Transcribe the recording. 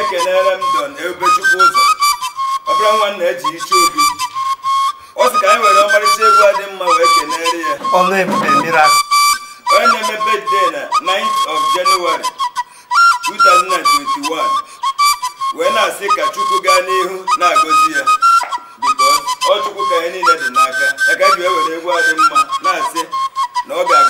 ekelere m don ebe chukwu ụzọ ọbụla nwa na eji iche obi ọ sị ka anyị were ọmarịcha egwu a dị mma wee kelere ya onye na-eme birthday na 9th of January 2021 wee na-asị ka chukwu gaa n'ihu na-agọzi ya biko ọ chukwu ka anyị niile dị n'aka ya ka eji wee were egwu a dị mma na-asị na ọ ga